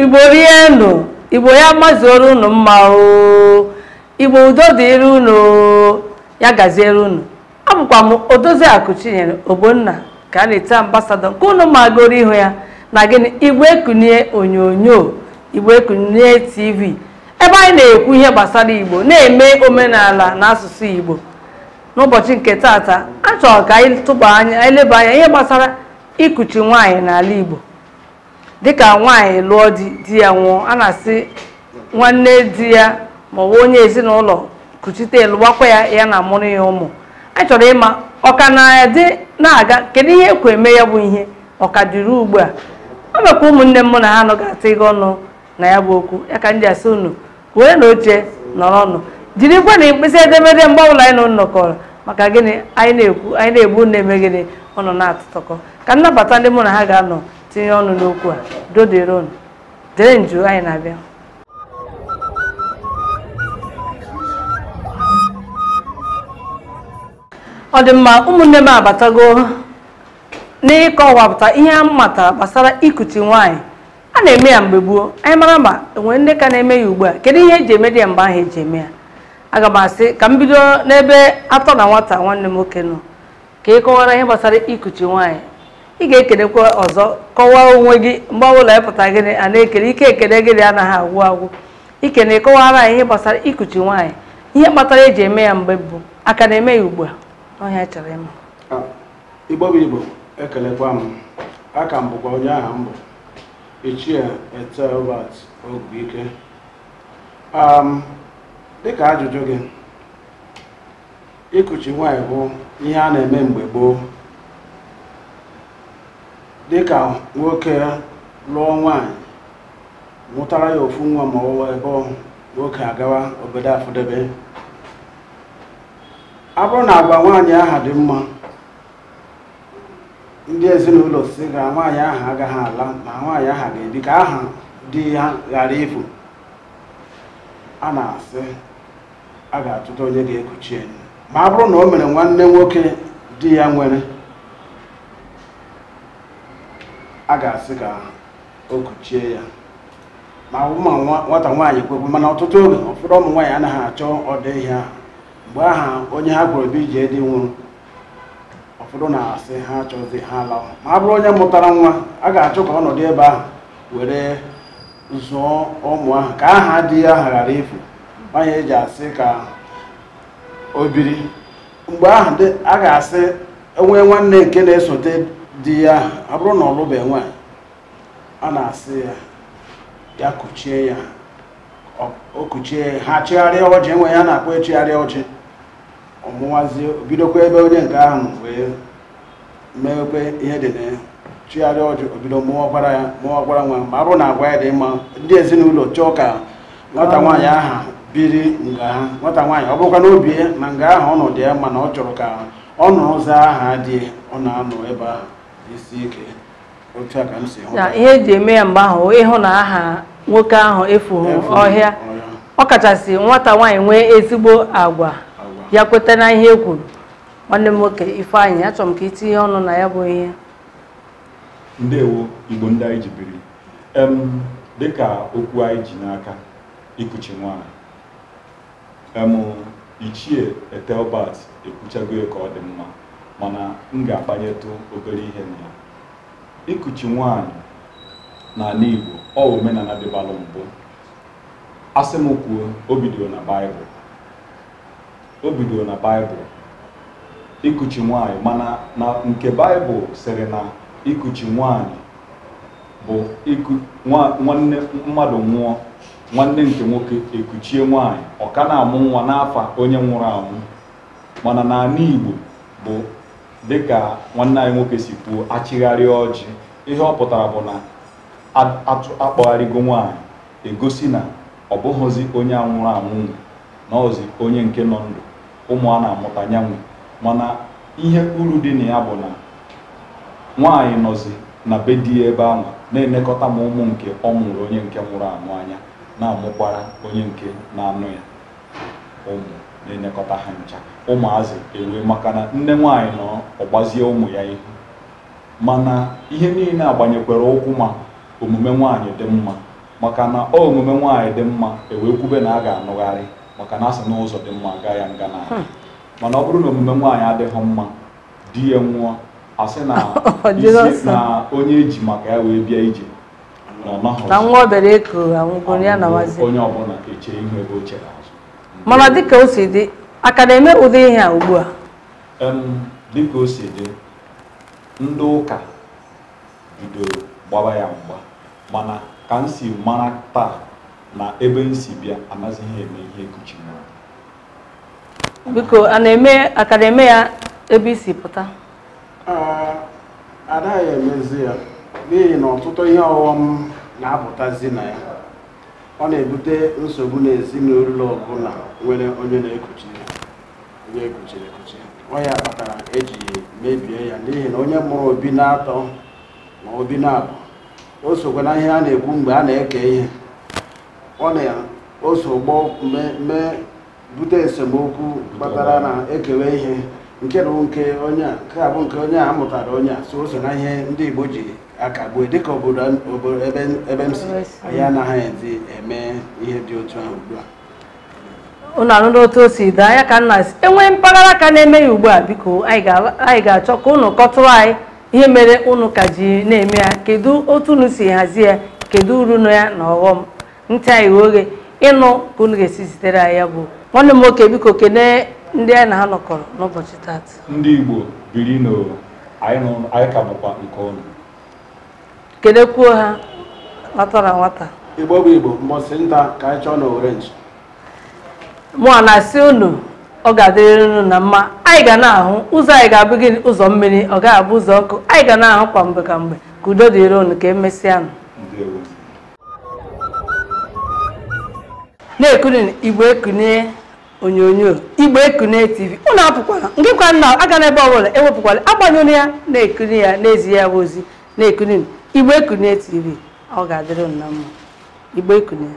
igbo rienụ igbo ya mazuoro unu mma o igbo udo dịrị unu ya gaziere unu abụkwa m odoziakụ chinyere ogbonna ka a na-ete ambasadọ nke unu magoro ihu ya na gịnị igbo ekunie onyonyo igbo ekunie tv ebe anyị na-ekwu ihe gbasara igbo na-eme omenala na asụsụ igbo n'ụbọchị nke tata achọrọ ka anyị tụba anya leba anya ihe gbasara ikuchi nwaanyị n'ala igbo dịka nwaanyị lụọ di di ya nwụọ a na-asị nwanne di ya ma ọ bụ onye ezinụlọ kuchite lụwakwa ya ya na amụrụ ya ụmụ anyị chọrọ ịma ọka na-adị na-aga kedu ihe ekwe eme ya bụ ihe ọka dịrị ugbu a ọ mekwa ụmụnne m na ha nọ ga ata ịga ọnụ na ya bụ okwu ya ka ndị asị unu were na oche nọrọ ọnụ jirikwa na mkpịsị edemede mgbe ọbụla anyị na nọkọrọ maka gịnị anyị na-ekwu anyị na-egbu na-eme gịnị nọ na-atụtọkọ ka nnabata ndị mụ na ha ga-anọ tinye ọnụ n'okwu a doderon dere nju anyị na-abịa ọ dị mma ụmụnne m abatago n'ịkọwapụta ihe a matara gbasara ikuchi nwaanyị a na-eme ya mgbe gboo anyị mara ma enwere ndị ka na-eme ya ugbu a kedu ihe eji eme dị ya mgbe ahụ eji eme ya aga m asị ka m bido n'ebe atọ na nwata nwanne m nwoke nọ ka ị kọwara ihe gbasara ikuchi nwaanyị ị ga-ekelekwa ọzọ kọwaa onwe gị mgbe ọbụla ịpụta gịnị a na-ekele ike ekele gịnị anaghị agwụ agwụ ikene kọwara anyị ihe gbasara ikuchi nwaanyị ihe kpatara eji eme ya mgbe bụ aka na-eme ya ugbu a ọhịa chọrọ ịma igbo igbo ekelekwa m aka m bụkwa onye aha mbụ ichie etelbat ogbuike dịka ajụjụ gị ịkụchi nwaanyị bụ ihe a na-eme mgbe gboo dịka nwoke lụọ nwanyị mụtara ya ofu nwa ma ọwụwa ebe nwoke agawa obodo afọdebe a bụrụ na agwa nwaanyị aha dị mma ndị ezinụlọ si ga nwaanyị aha agaghị ala ma nwaanyị aha ga-ebi ka aha di ya ghara ifu a na-asị a ga-atụta onye ga-ekuchi enyi ma a bụrụ na o mere nwanne nwoke di ya nwere a ga-asị ka o kuchie ya ma ụmụ nwata nwaanyị kwekwe mana ọtụtụ oge ụfọdụ ụmụ nwaanyị anaghị achọ ọdọ ihe ahụ mgbe aha onye ha gwụrụ ebe ije dị nwụrụ ụfọdụ na-asị ha achọghịzi ha lawa ma a bụrụ onye mụtara nwa a ga-achọ ka ọnọdụ ebe ahụ were zụọ ụmụ ahụ ka aha dị ya aha ghara efu nwaanyị eji asị ka o biri mgbe ahụ a ga-asị enwee nwanne nke na-esote di ya abụrụ na ọlụbe enwe a na-asị ya ya kụchie ya o kuchie ha chigharịa ọjị enwe ya na-akpọ echigharịa ọjị ọmụwazi obidokwa ebe onye nke ahụ wee mewekwe ihe dị na ya chigharịa ọjị obido mụọ ọgbara ya mụọ ọgbara nwa ma abụrụ na agwa ya dị mma ndị ezinụlọ chọọ ka nwata nwaanyị aha biri nga ha nwata nwaanyị ọ bụrụkwa n'obi na nga ahụ ọnọdụ ya mana ọ chọrọ ka ọ nụrụ ụzọ aha dị ọ na-anọ ebe ahụ na ihe eji eme ya mgbe ahụ ịhụ na aha nwoke ahụ efughị ọhịa ọ kachasị nwata nwaanyị nwee ezigbo agwa ya kweta na ihe e kwuru nwanne m nwoke ifeanyị achọrọ m ka itinye ọnụ na ya bụ ihe ndewo igbo ndị anyị ji biri dịka okwu anyị ji n'aka ikuchi nwaanyị ichie etelbat ekwuchago ya ka ọ dị mma mana m ga-akpanyetụ obere ihe na ya ikuchi nwaanyị n'ala Igbo ọ omenala dịbalụ mbụ asị m kwuo o bidoro na baịbụl o bidoro na baịbụl ikuchi nwaanyị mana na nke baịbụl sịrị na ikuchi nwaanyị bụ nwanne mmadụ nwụọ nwanne nke nwoke ekuchie nwaanyị ọ ka na-amụ nwa n'afọ onye nwụrụ anwụ mana n'ala Igbo bụ dịka nwanne anyị nwoke si kwuo achịgharịa ọjị ihe ọ pụtara bụ na akpọgharịgo nwaanyị egosi na ọ bụghịzi onye anwụrụ anwụ na ọzi onye nke nọ ndụ ụmụ a na-amụta nyanwụ mana ihe uru dị na ya bụ na nwaanyị nọzi na be di ya ebe ahụ na-enekọta ma ụmụ nke ọ mụrụ onye nke nwụrụ anwụ anya na-amụkwara onye nke na-anụ ya ụmụ na-enyekọta ha ncha ụmụazị enwee maka na nne nwaanyị nọ ọgbazie ụmụ ya ihu mana ihe niile agbanyekwere ụkwụ ma omume nwaanyị dị mma maka na ọ omume nwaanyị dị mma ewee kwube na a ga-anụgharị maka na asị na ụzọ dị mma gaa ya nga na hmm. mana ọ bụrụ na omume nwaanyị adịghị mma di ya nwụọ asị na oh, na onye eji maka ya wee bịa ije na nwa obere eko onye ọbụla eche ihu ebe o chere azụ mana dịka o si dị a ka na-eme ụdị ihe a ugbu a dịka o si dị ndị ụka bidoro gbaba ya mgba mana ka m si mara taa na ebe m si bịa amaghị ihe eme ihe kuchiwara biko a na-eme a ka na-eme ya ebe isi pụta ada ya emezi ya n'ihi na ọtụtụ ihe ọghọm na-apụtazi na ya ọ na-ebute nsogbu n'ezinụlọ ọbụla nwere onye na-ekuchi onye ekuchiri ekuchi ọ ya kpatara eji mebie ya n'ihi na onye mụrụ obi na-atọ ma obi na-abụ o sokwa na ihe a na-ekwu mgbe a na-eke ihe ọ na-osogbo mee bute esemokwu kpatara na ekewe ihe nke bụ nke onye a nke a bụ nke onye a mụtara onye a so o so na ihe ndị Igbo ji akagbue dịka obodo ebe m si anyị anaghị ezi eme ihe dị otu ahụ ugbu a unu anụ otu o si daa ya ka nna si enwe mpaghara ka na-eme ya ugbu a biko anyị ga-achọ ka ụnụ kọtụrụ anyị ihe mere ụnụ ka ji na-eme ya kedu otu unu si hazie ya kedu uru nọ ya na ọghọm ntị anyị oghe ịnụ ka unu ga-esi zitere anyị ya bụ nwanne m nwoke biko kene ndị anyị na ha n'ụbọchị tata ndị Igbo biri n'ụwa anyị ka bụkwa nke ọnụ kelekwuo ha nwatara nwata igbo bụ igbo mbọsị nta ka anyị chọọ na orenji mụọ na-asị unu ọ ga-adịrịrị unu na mma anyị ga na-ahụ ụzọ anyị ga-abụ gị ụzọ mmiri ọ ga abụ ụzọ ọkụ anyị ga na-ahụ kwa mgbe ka mgbe ka udo dịrị unu ka emesịa na-ekuni igbo ekunie onyonyo igbo ekunie tv ụlọ apụkwala nke kwa nna aga n'ebe ọbụla ewepụkwala agbanyụrụ ya na-ekuni ya n'ezi ya bụ ozi na-ekuni Igbe Ekunne TV ọ ga-adịrị nna mma Igbe Ekunne